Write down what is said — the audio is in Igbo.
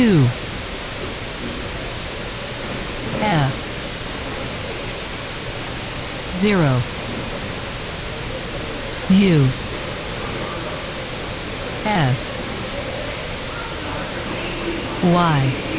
two F zero U S Y